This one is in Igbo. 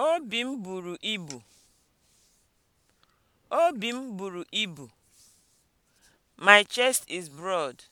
Obi m buru ibu. Obi m buru ibu. My chest is broad.